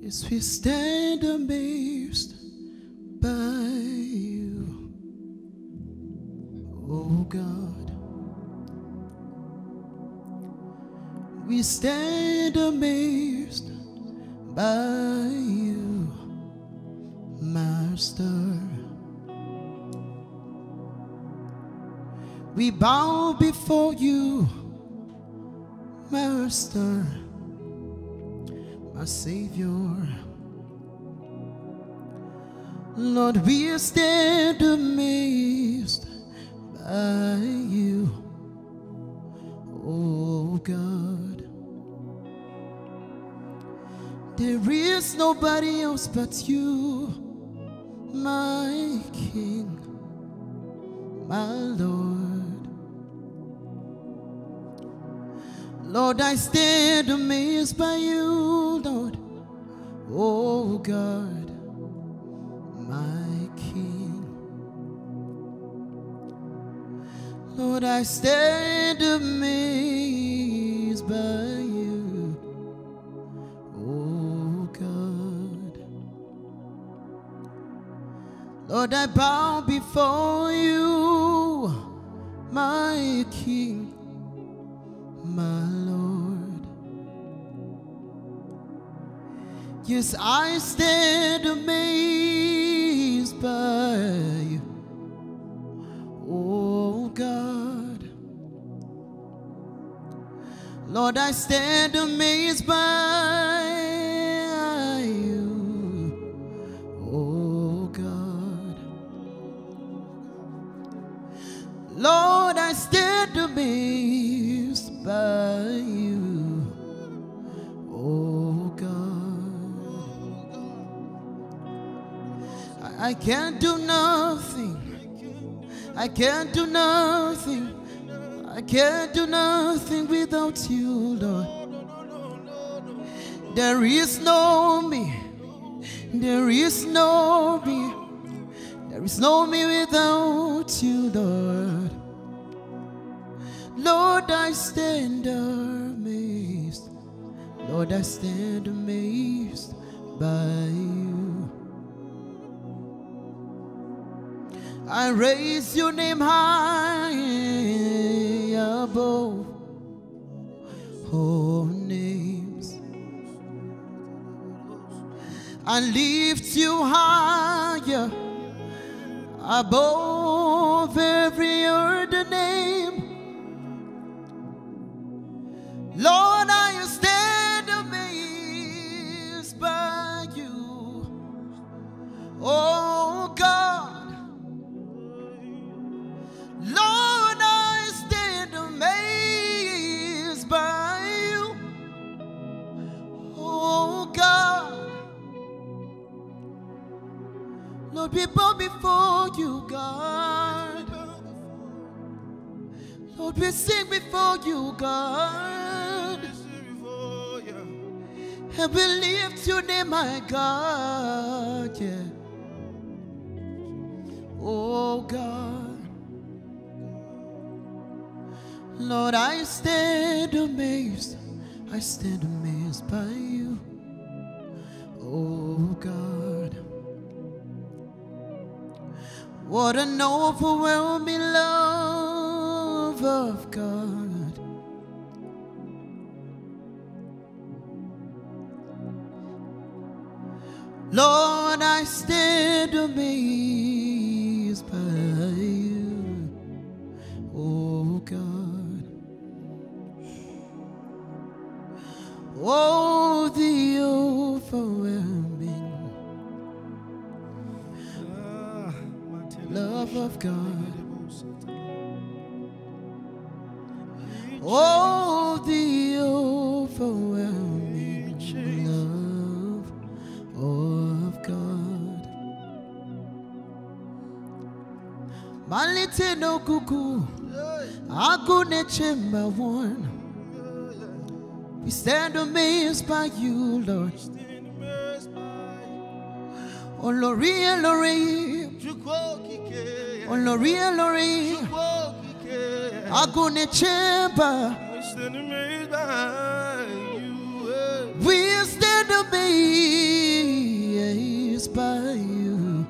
Yes, we stand amazed by you, oh God. We stand amazed by you, Master. We bow before you, Master our Savior. Lord, we stand amazed by you, oh God. There is nobody else but you, my King, my Lord. Lord, I stand amazed by you, Lord. Oh God, my King. Lord, I stand amazed by you. Oh God. Lord, I bow before you, my King my Lord. Yes, I stand amazed by you, oh God. Lord, I stand amazed by by you, oh God. I can't do nothing. I can't do nothing. I can't do nothing without you, Lord. There is no me. There is no me. There is no me without you, Lord. Lord, I stand amazed. Lord, I stand amazed by you. I raise your name high above all names. I lift you higher above every other name. Your people before you, God. Lord, we sing before you, God. And we lift your name, my God. Yeah. Oh, God. Lord, I stand amazed. I stand amazed by you. Oh, God. What an overwhelming love of God. Lord, I stand amazed. God. Oh, the overwhelming love of God. Malite no kuku, agune chimba one. We stand amazed by you, Lord. Oh, Lori, Lori. On the real, I onlorielori agone chamber we stand amazed by you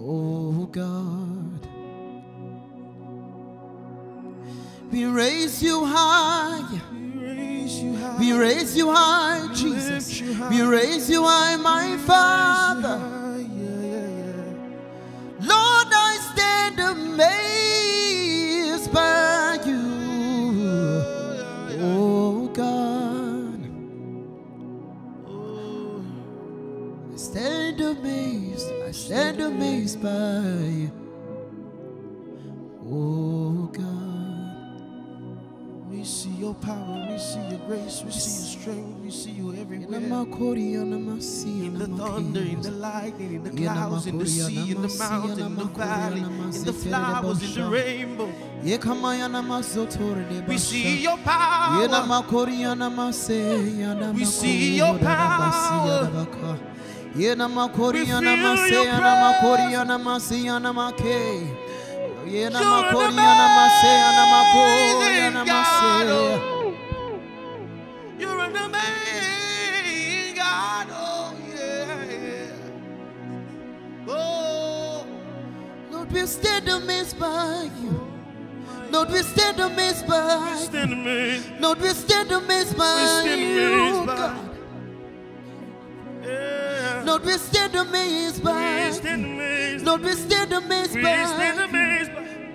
oh god we raise you high we raise you high jesus we raise you high my father amazed by you, oh God. I stand amazed, I stand amazed by you. your power, we see your grace, we see your strength, we see you everywhere. In the thunder, in the lightning, in the clouds, in the sea, in the mountain, in the valley, in the flowers, in the rainbow. We see your power. We see your power. We feel your presence. You're man, God, oh. you're an amazing God, oh yeah. Oh, Lord, we stand amazed by you. Lord, we stand amazed by you. Stand amazed. Lord, we stand amazed by you, God. Lord, we stand amazed by Lord, we stand amazed by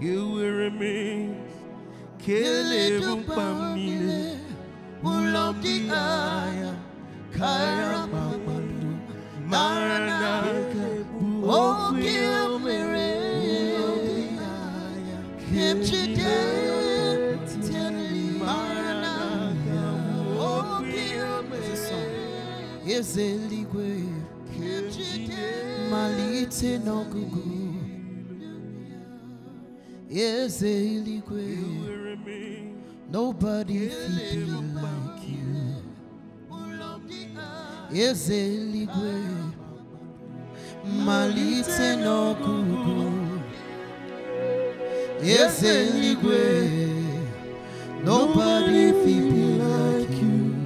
ewere mmiri kelere mkpa m niile ụlọ dị anya karịa kpakpando mara na aka bụ oge mere kemchidere eze eluigwe malite n'ọgụgụ Yes, Eligwe. Nobody feels like you. Yes, Eligwe. Malice no kuku. Yes, Eligwe. Nobody feels like you.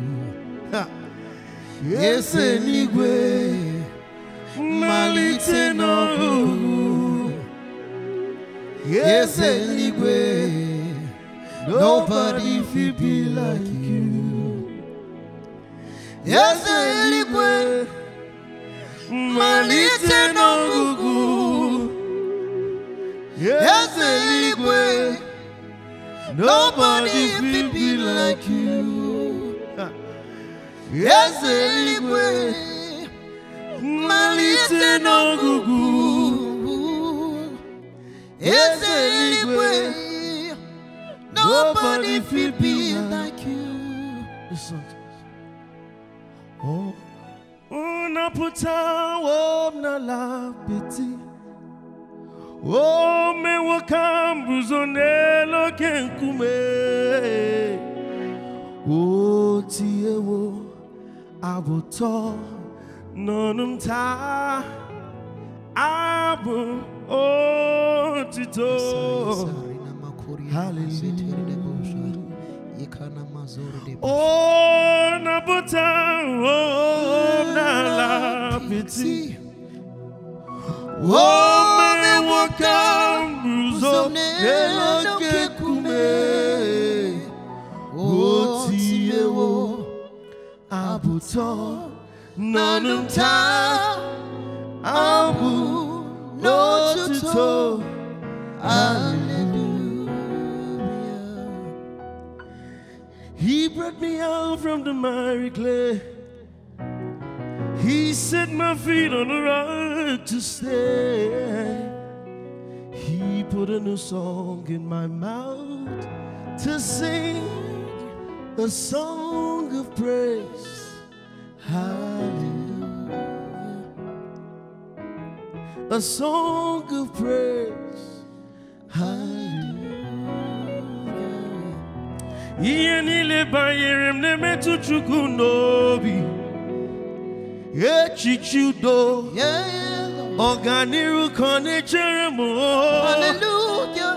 Yes, Eligwe. Malice no kuku. Yes, anyway, nobody feel be like you. Yes, anyway, malite no gugu. Yes, anyway, nobody feel be like you. Yes, anyway, malite no gugu eze eluigwe nobody feel be like you Oh, unapụta wom n'ala oh ome nwoke ahụ lo n'elu oke nkume wo. tiewo abụtọ n'ọnụ m taa abo otito hallelujah ona buta oh la piti wome wakambuzo eloke kume otiyewo abuto nanumtaa Ambu no tuto. Hallelujah. He brought me out from the miry clay. He set my feet on the rock to stay. He put a new song in my mouth to sing a song of praise. Hallelujah. a song of praise. Hallelujah. Ihe niile banyere m na-emetụ Chukwu n'obi. Echiche udo. Ọganihu ka ọ na-echere m.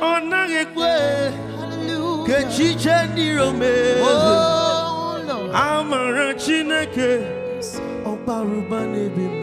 Ọ naghị ekwe. Ka echiche ndị Rome. Oh, Amara Chineke. Ọbara ụba n'ebe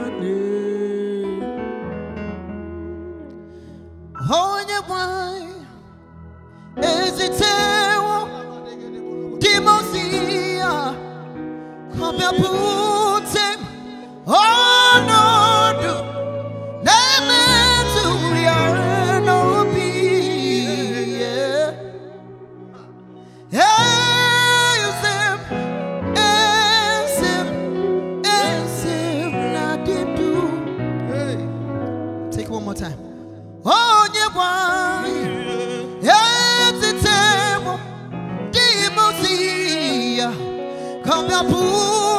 Com meu pude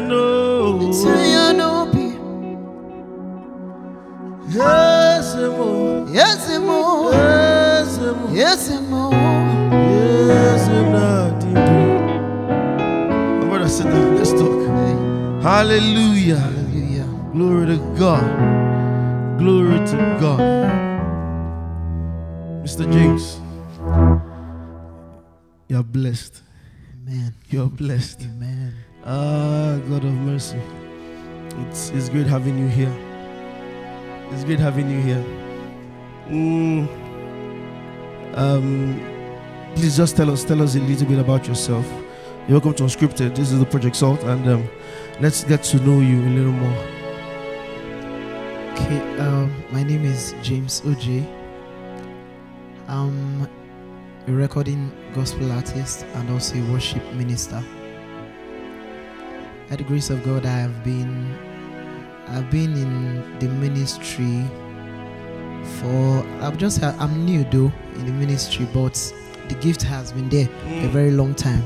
no. Ituyano Yes, mo. Yes, Yes, mo. Yes, Yes, nothing. My brother, sit down. Let's talk. Hallelujah. Hallelujah. Glory to God. Glory to God. Mr. James, you're blessed. Amen. You're blessed. Amen. Ah, God of mercy. It's, it's great having you here. It's great having you here. Mm, um, please just tell us, tell us a little bit about yourself. You're welcome to Unscripted. This is the Project Salt, and um, let's get to know you a little more. Okay, um, my name is James OJ. I'm a recording gospel artist and also a worship minister by the grace of God, I have been I've been in the ministry for i have just I'm new though in the ministry, but the gift has been there mm. a very long time.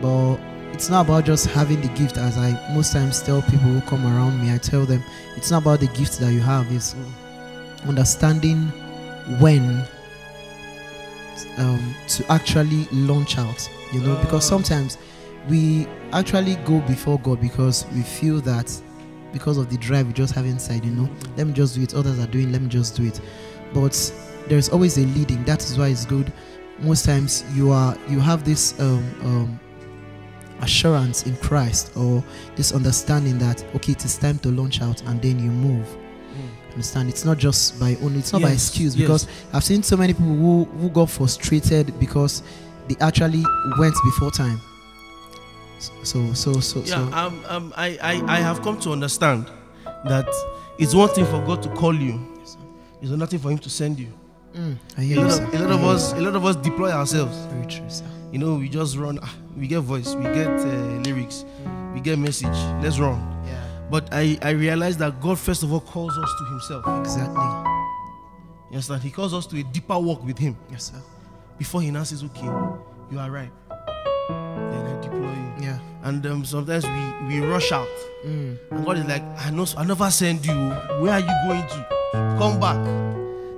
But it's not about just having the gift, as I most times tell people who come around me. I tell them it's not about the gift that you have; it's mm. understanding when um, to actually launch out. You know, because oh. sometimes we actually go before God because we feel that because of the drive we just have inside, you know, let me just do it. Others are doing, let me just do it. But there's always a leading. That is why it's good. Most times you are you have this um, um, assurance in Christ or this understanding that okay, it is time to launch out, and then you move. Mm. Understand? It's not just by only. It's not yes. by excuse because yes. I've seen so many people who who got frustrated because they actually went before time so, so, so, yeah, so. Um, um, I, I, I have come to understand that it's one thing for God to call you, it's another thing for Him to send you. Mm. I hear a, lot you, of, a lot of us, a lot of us deploy ourselves. Very true, sir. You know, we just run. Ah, we get voice, we get uh, lyrics, we get message. Let's run. Yeah. But I, I realize that God first of all calls us to Himself. Exactly. Yes, sir. He calls us to a deeper walk with Him. Yes, sir. Before He announces, okay, you are right then I deploy Yeah. And um, sometimes we, we rush out. Mm. And God is like, I know I never send you. Where are you going to? Come back.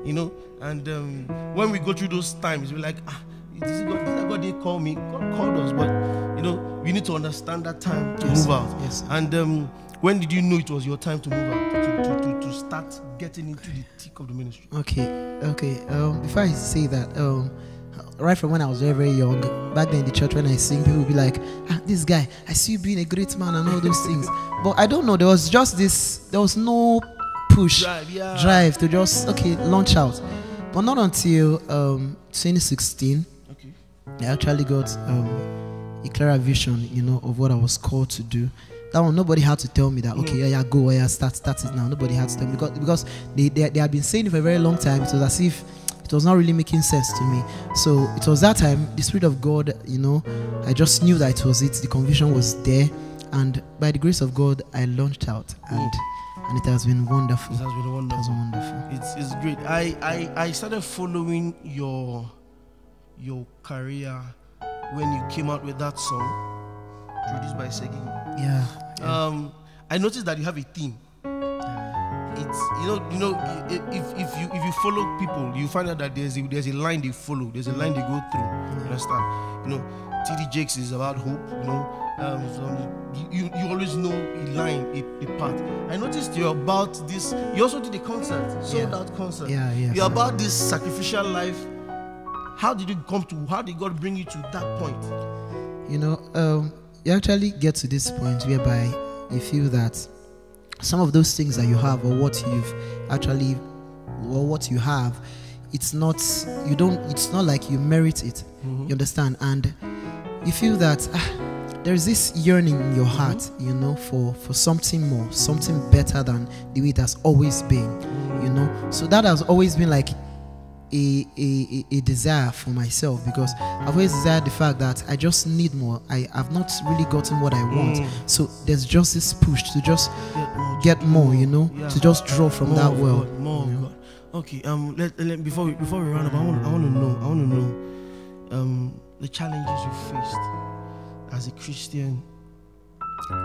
You know? And um, when we go through those times, we're like, ah, this God, this God didn't call me. God called us, but you know, we need to understand that time to yes, move out. Yes. And um, when did you know it was your time to move out? To, to, to, to start getting into the thick of the ministry. Okay, okay. Um, before I say that, um, right from when I was very, very young, back then in the church when I sing, people would be like, ah, this guy, I see you being a great man and all those things. But I don't know, there was just this, there was no push, drive, yeah. drive to just, okay, launch out. But not until um, 2016, okay. I actually got um, a clearer vision, you know, of what I was called to do. That one, nobody had to tell me that, okay, yeah, yeah, go, yeah, start, start it now. Nobody had to tell me because, because they, they, they had been saying it for a very long time. It was as if it was not really making sense to me. So it was that time, the Spirit of God, you know, I just knew that it was it. The conviction was there. And by the grace of God, I launched out. And and it has been wonderful. It has been wonderful. It wonderful. It's, it's great. I, I, I started following your your career when you came out with that song produced by Segi. Yeah, yeah. Um, I noticed that you have a theme it's you know you know if, if you if you follow people you find out that there's a, there's a line they follow there's a line they go through you understand you know td jakes is about hope you know um, so um, you, you always know a line a, a path i noticed you're about this you also did a concert sold yeah. out concert yeah yeah you're about this sacrificial life how did you come to how did god bring you to that point you know um, you actually get to this point whereby you feel that some of those things that you have or what you've actually or what you have it's not you don't it's not like you merit it mm-hmm. you understand and you feel that ah, there's this yearning in your heart mm-hmm. you know for for something more something better than the way it has always been you know so that has always been like a, a, a desire for myself because I've always desired the fact that I just need more. I have not really gotten what I want. Mm. So there's just this push to just get more, get more you know, yeah. to just draw from more that well. God, more you know? Okay, um, let, let, before, we, before we round up, I want, I want to know, I want to know um, the challenges you faced as a Christian,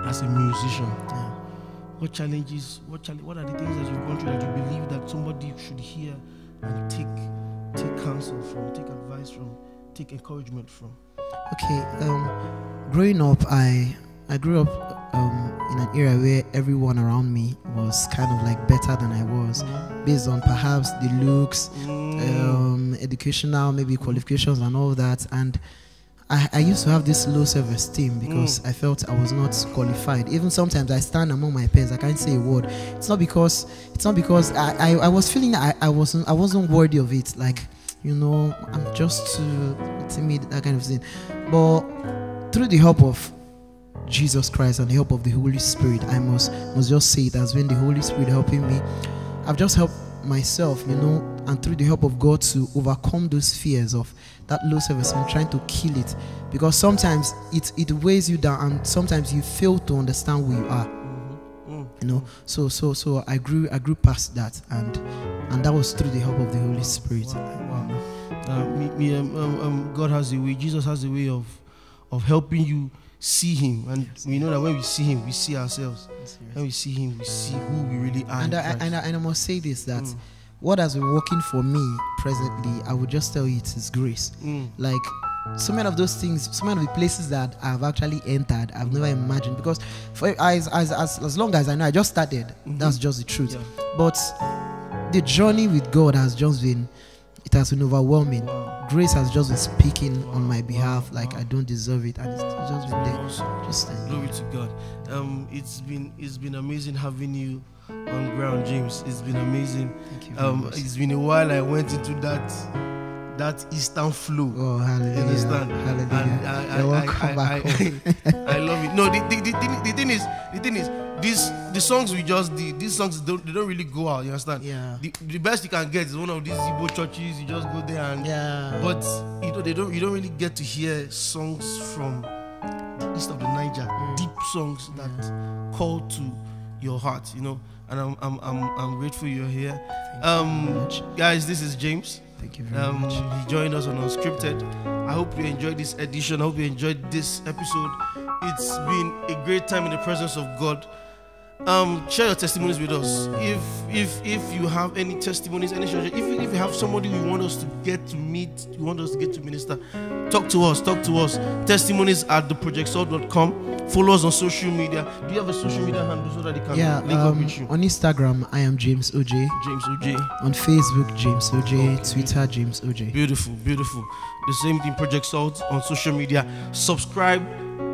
as a musician. Yeah. What challenges, what, chal- what are the things that you've gone through that you believe that somebody should hear? and take take counsel from, take advice from, take encouragement from? Okay, um, growing up, I I grew up um, in an era where everyone around me was kind of like better than I was, mm. based on perhaps the looks, mm. um, educational maybe qualifications and all that, and I, I used to have this low self esteem because mm. I felt I was not qualified. Even sometimes I stand among my peers, I can't say a word. It's not because it's not because I, I, I was feeling I, I wasn't I wasn't worthy of it. Like, you know, I'm just too timid, that kind of thing. But through the help of Jesus Christ and the help of the Holy Spirit, I must must just say it when the Holy Spirit helping me. I've just helped myself, you know, and through the help of God to overcome those fears of that low service and trying to kill it. Because sometimes it, it weighs you down and sometimes you fail to understand who you are. Mm-hmm. Mm. You know, so so so I grew I grew past that and and that was through the help of the Holy Spirit. Wow. wow. Uh, me, me, um, um, um God has a way. Jesus has a way of of helping you see him and yes. we know that when we see him we see ourselves when we see him we see who we really are and I, and I, and I must say this that mm what has been working for me presently, I would just tell you it is grace. Mm. Like so many of those things, so many of the places that I've actually entered, I've never imagined because for as as as, as long as I know, I just started. Mm-hmm. That's just the truth. Yeah. But the journey with God has just been it has been overwhelming. Wow. Grace has just been speaking wow. on my behalf, wow. like I don't deserve it, and it's just been there. Awesome. Just glory to God. Um, it's been it's been amazing having you on ground, James. It's been amazing. Um, it's been a while I went into that that eastern flow. Oh, hallelujah! Understand? Hallelujah! And I, I, I, I, love it. No, the, the, the, the, thing is, the thing is, these the songs we just did, these songs don't they don't really go out. You understand? Yeah. The, the best you can get is one of these zibo churches. You just go there and yeah. But you know they don't you don't really get to hear songs from the east of the Niger, mm. deep songs that yeah. call to your heart, you know. And I'm, I'm, I'm, I'm grateful you're here. Um, you guys, this is James. Thank you very um, much. He joined us on Unscripted. I hope you enjoyed this edition. I hope you enjoyed this episode. It's been a great time in the presence of God. Um, share your testimonies with us. If if if you have any testimonies, any if if you have somebody you want us to get to meet, you want us to get to minister, talk to us. Talk to us. Testimonies at theprojectsoul.com. Follow us on social media. Do you have a social media handle so that they can yeah, link um, up with you? On Instagram, I am James OJ. James OJ. On Facebook, James OJ. Okay. Twitter, James OJ. Beautiful, beautiful. The same thing Project Salt on social media. Subscribe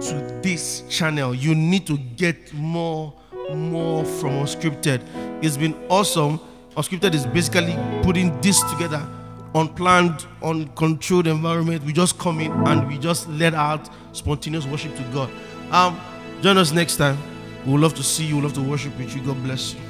to this channel. You need to get more, more from Unscripted. It's been awesome. Unscripted is basically putting this together unplanned, uncontrolled environment. We just come in and we just let out spontaneous worship to God. Um, join us next time. We would love to see you. We would love to worship with you. God bless you.